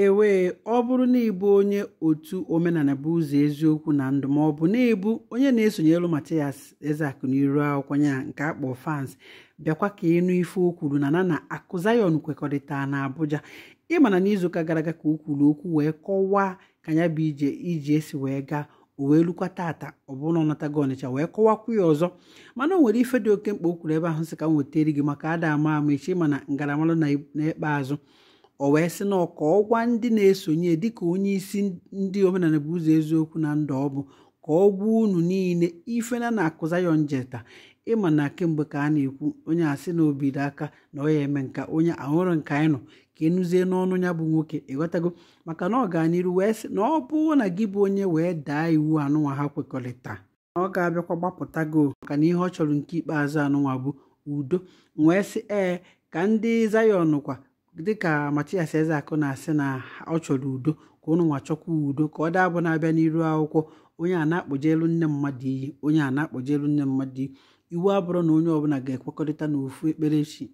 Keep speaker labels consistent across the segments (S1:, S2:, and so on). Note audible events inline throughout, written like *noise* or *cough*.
S1: ewee ọ bụrụ na ịbụ onye otu omenala bụ ụzọ eziokwu na ndụ ma ọ bụ na ebu onye na-esonyelu Mathias Ezeaku n'iru akwụkwọ nke akpọ fans bịakwa ka ịnụ ife o kwuru na na na akụ kwekọrịta na Abuja ịmana n'izuụka gara aga ka o kwuru okwu wee kọwaa ka ya bụ ije iji esi wee gaa o wee lukwa tata ọ bụrụ na ọ natago ọnịcha wee kọwakwu ya ọzọ mana o nwere ife dị oke mkpa o kwuru ebe ahụ si ka m gị maka ada ama ama echi mana ngaramara na ikpeazụ o wee sị na ọka ọgwa ndị na-esonye dịka onye isi ndị omenala bụ ụzọ eziokwu na ndụ ọ bụ ka ọ gwa unu niile ife na na-akụza ya njeta ịma na kemgbe ka a na-ekwu onye asị na obido aka na ọ ya eme nka onye ahụrụ nke anyị ka enuzie n'ọnụ ya bụ nwoke ịghọtago maka na ọ ọganiru wee sị na ọ bụrụ na gị bụ onye wee daa iwu anụnwa ha kwekọrịta na ọ ga-abịakwa gbapụta gị maka na ihe ọ chọrọ nke ikpeazụ anụnwa bụ udo wee sị ee ka ndị zayọn kwa dịka Mathias akụ na-asị na ọ chọrọ udo ka ụnụ nwa chọkwa udo ka ọ daa bụ na-abịa n'iru akwụkwọ onye a na-akpọjelu nne mmadụ iyi onye a na-akpọjelu nne mmadụ iyi iwu abụrụ na onye ọbụla ga-ekwekọrịta n'ofu ekpere chi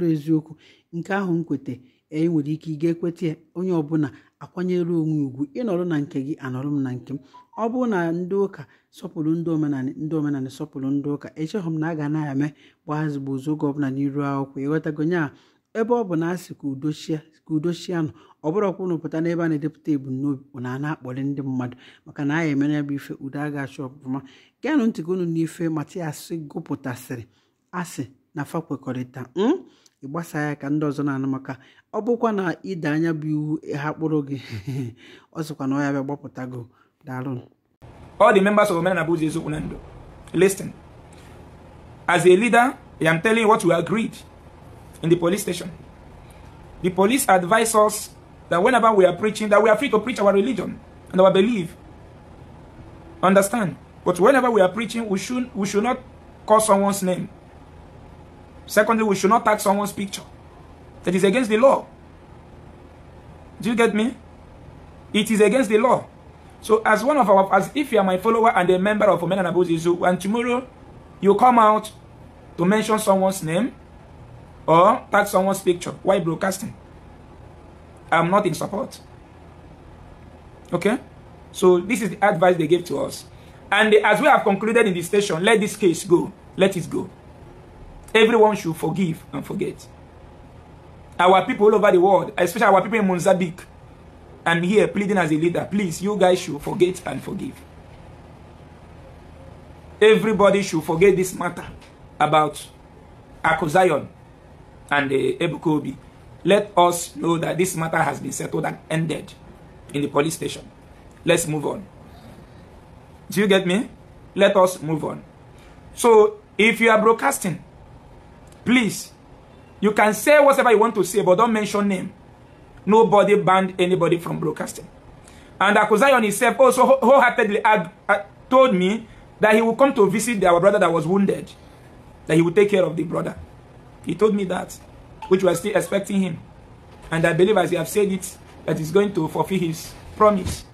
S1: ọ eziokwu nke ahụ m kweta e nwere ike ị ga-ekweta ya onye ọbụla akwanyere onwe ugwu ịnọrọ na nke gị anọrọ m na nke m ọ bụrụ na ndị ụka sọpụrụ ndị omenala ndị omenala sọpụrụ ndị ụka echeghị m na a ga na-eme gbaa ezigbo oge ọbụla n'iru akwụkwọ ịghọtago nya ebe ọ bụ na asị ka udochia ka nọ ọ bụrọkwa unu pụta n'ebe a na-edepụta ebumnobi na a na-akpọrị ndị mmadụ maka na anya emere bụ ife udo a ga-achọ ọbụma geenụ ntị ka unu n'ife matias gụpụtasịrị asị na fa kwekọrịta hmm, ịgbasa ya ka ndị ọzọ na-anụ maka ọ bụkwa na ide anya bụ iwu ha kpụrụ gị *laughs* ọ sịkwa na ọ ya bịa gbapụta go daalụ na
S2: as a leader I am telling you what agreed in the police station. The police advise us that whenever we are preaching, that we are free to preach our religion and our belief. Understand? But whenever we are preaching, we should, we should not call someone's name. Secondly, we should not tag someone's picture. That is against the law. Do you get me? It is against the law. So as one of our, as if you are my follower and a member of Omen and Abuzizu, and tomorrow you come out to mention someone's name, or tag someone's picture Why broadcasting. I'm not in support. Okay? So this is the advice they gave to us. And as we have concluded in this station, let this case go. Let it go. Everyone should forgive and forget. Our people all over the world, especially our people in Mozambique, I'm here pleading as a leader. Please, you guys should forget and forgive. Everybody should forget this matter about Akuzion and uh, Ebukobi, let us know that this matter has been settled and ended in the police station. Let's move on. Do you get me? Let us move on. So, if you are broadcasting, please, you can say whatever you want to say, but don't mention name. Nobody banned anybody from broadcasting. And Akuzayon himself also wholeheartedly uh, told me that he will come to visit our brother that was wounded, that he will take care of the brother. He told me that, which was still expecting him. And I believe as he has said it, that he's going to fulfill his promise.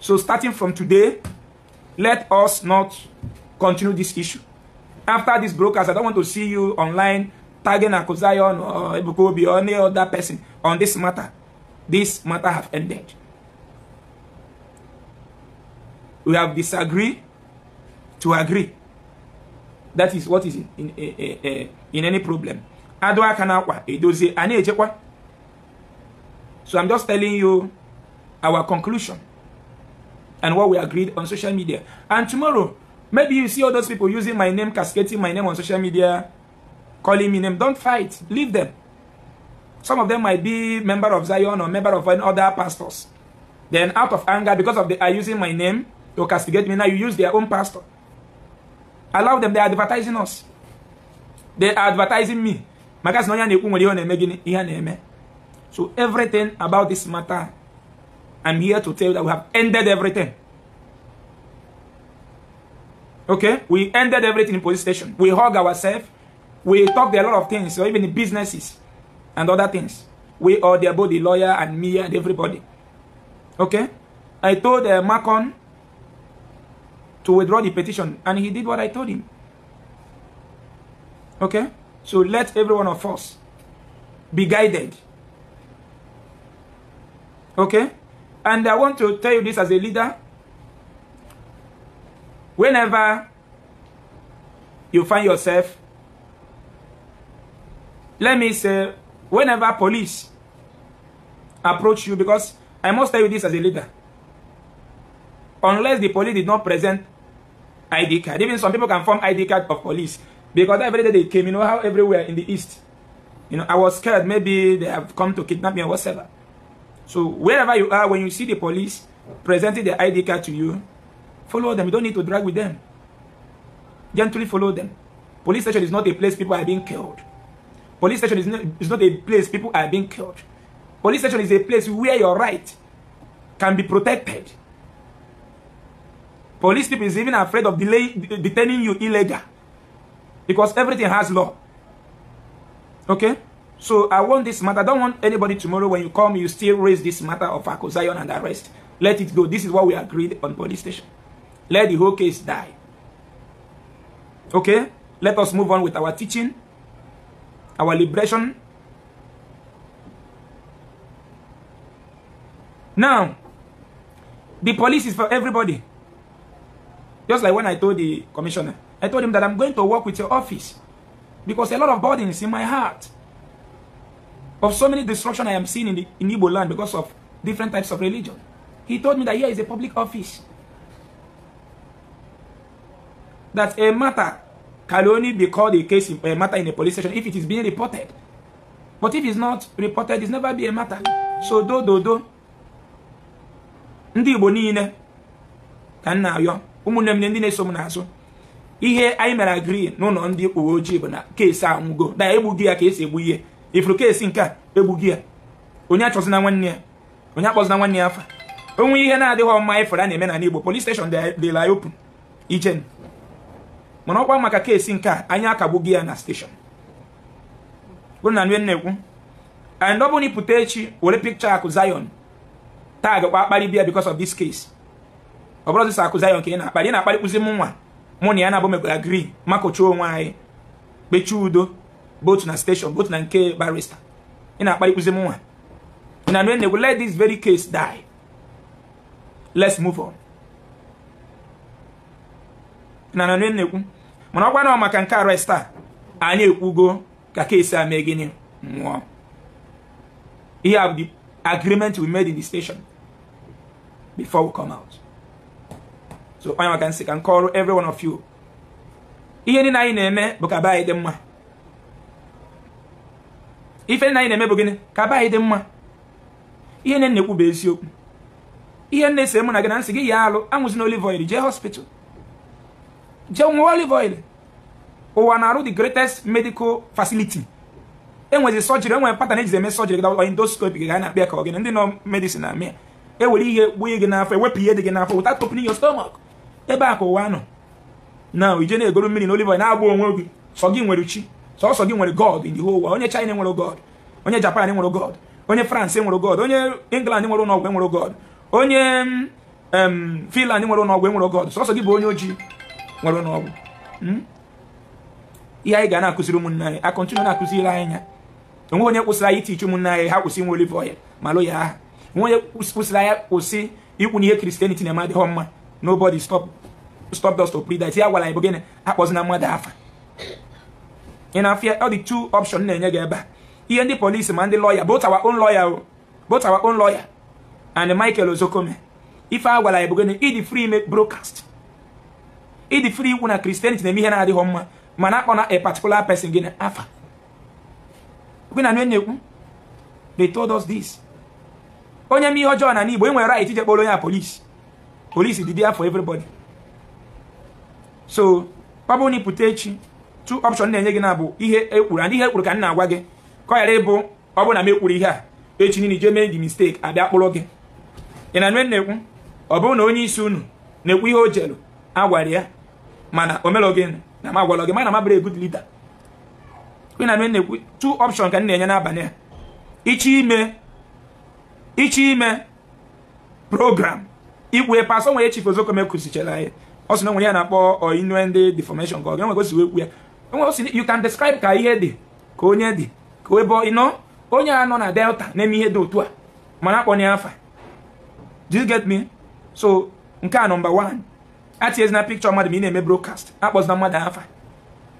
S2: So starting from today, let us not continue this issue. After this broadcast, I don't want to see you online tagging Akuzayon or Ibukobi or any other person on this matter. This matter have ended. We have disagreed to agree. That is what is in, in, in, in any problem. adụ aka n'akwa edozie a na-echekwa so i'm just telling you our conclusion and what we agreed on social media and tomorrow maybe you see all those people using my name cascading my name on social media calling me name don't fight leave them some of them might be member of zion or member of other pastors then out of anger because of they are using my name to castigate me now you use their own pastor allow them they are advertising us they are advertising me maka sị na onye na-ekwu nwere ihe ọ na-eme gịnị ihe a na-eme so everything about this matter I'm here to tell you that we have ended everything okay we ended everything in police station we hug ourselves we talked a lot of things or so even businesses and other things we all there both the lawyer and me and everybody okay I told uh, Macon to withdraw the petition and he did what I told him okay So let every one of us be guided. Okay? And I want to tell you this as a leader. Whenever you find yourself, let me say, whenever police approach you, because I must tell you this as a leader, unless the police did not present ID card, even some people can form ID card of police Because every day they came, you know how everywhere in the east, you know, I was scared maybe they have come to kidnap me or whatever. So wherever you are, when you see the police presenting their ID card to you, follow them. You don't need to drag with them. Gently follow them. Police station is not a place people are being killed. Police station is not, is not a place people are being killed. Police station is a place where your right can be protected. Police people is even afraid of delay, detaining you illegal. because everything has law okay so i want this matter i don't want anybody tomorrow when you come you still raise this matter of accusation and arrest let it go this is what we agreed on police station let the whole case die okay let us move on with our teaching our liberation now the police is for everybody just like when i told the commissioner I told him that I'm going to work with your office because a lot of burden is in my heart of so many destruction I am seeing in, the, in Igbo land because of different types of religion. He told me that here is a public office. That a matter can only be called a case, in, a matter in a police station if it is being reported. But if it's not reported, it's never be a matter. So do do do. Ndị Igbo niile ka m na-ayọ ụmụnne m ndị na-eso m n'azụ ihe anyị mere agri n'ụlọ ndị uwe ojii bụ na keesi anwụgo na egbughị ya ka esi egbu ihe ifuru keesi nke a egbughị ya onye na nwanne ya onye na nwanne ya afa onwe ihe na-adịghị mma ịfụrụ a na-eme na Igbo police station dị open ichen mana ọkwa maka keesi nke a anyị akagbughị ya na steshọn. na-ekwu and ọ bụrụ echi were pikcha akụ Zion tag kwa akparị bịa because of this case ọ bụrụ ọzịsa akụ Zion ka ị na-akparị ị na-akparịkwụzi m nwa mụ na ya na-abụ agri makụcha onwe anyị kpechie udo both na station both na nke barista ị na-akparịkụzi m nwa ị na-anụ enegwu let this very case die let's move on ị na-anụ nnekwu mana ọ maka nke arrest a anyị ekwugo ka keesi a mee gịnị nwụọ ihe have the agreement we made in the station before we come out so onye maka nsị ka m kọọrọ every one of you ihe niile anyị na-eme bụ ka be anyị dị mma ife niile anyị na-eme bụ gịnị ka be anyị dị mma ihe nne na-ekwu bụ eziokwu ihe nne sịrị mụ na gị na nsị gị ya alụ anwụzina olive oil jee hospital jee nwa olive oil ụwa na-arụ the greatest medical facility enwezi sọjiri enwere patan ejizi eme sọjiri gị endoscope gị na-akpịa ka ọ gị ndị nọ medicine na amịa ewere ihe gbuo gị n'afọ ewepụ ihe dị gị n'afọ without opening your stomach ebe a ka ụwa nọ na ije na-egoro mmiri na olive na-agba onwe gị sọ gị nwere chi sọsọ gị nwere god in the whole world onye china nwere god onye japan nwere god onye france nwere god onye england nwere ụlọọgwụ nwere god onye finland nwere ụlọọgwụ nwere god sọsọ gị bụ onye ojii nwere ụlọọgwụ hmm? ihe anyị ga na-akụziri ụmụnne anyị akọntinu na-akụziri anyị ya onwe onye kwụsịrị anyị itichi ụmụnne anyị ha kwụsị nwe olive ma lụ ya aha onwe onye kwụsịrị anyị kwụsị ikwu na ihe kristianity na-eme mma nobody stop stopdust to iti ya gwara anyị bụ gịnị na mmadụ afa ị na fia ọ dị two option na-enye gị ebe a ihe ndị polisi ma ndị lọya both our lawyer o both our own lawyer and Michael Ozokome ife agwala gwara anyị bụ ịdị free ime broadcast ịdị free ikwu na Christianity na-eme ihe na-adịghị mma mana akpọ na a particular person gịnị afa gị na na they told us this onye m ihe e dị everybody so ọ bụrụ na ịpụta echi two option na-enye gị na bụ ihe ekwuru ndị ihe ekwuru ka m na-agwa gị ka ọ ghara ịbụ ọ bụrụ na m ekpuru ihe a echi niile ije mee gị mistake abịa kpụrụ gị ị na nwe na-ekwu ọ bụrụ na onye isi unu na-ekwu ihe o jelu agwara ya mana o melọ gị na m agwalọ gị mana ma bụrụ good leader ị na nwe na-ekwu two option ka m na-enye n'abalị a ichi ime ichi ime program ikwu epe asọ nwere chifu ozokomekuzichara ya ọ sị na nwere ya na-akpọ innuendo deformation ka ọ ga-enwe gosi ekwu ya enwe o si you can describe ka ihe dị ka onye dị ka ebe ịnọ onye a nọ na delta na-eme ihe dị otu a mana akpọ na afa you get me so nke a nọmba 1 atinyezina pikchọ mmadụ ma ị na-eme brokast akpọzina mmadụ afa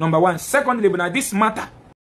S2: nọmba 1 secondly bụ na dis mata.